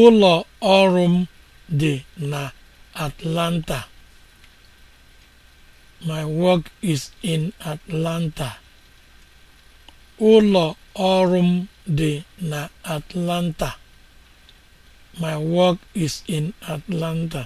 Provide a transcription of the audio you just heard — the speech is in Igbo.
ụlọ ọrụ m dị na Atlanta my work is in Atlanta na Atlanta my work is in Atlanta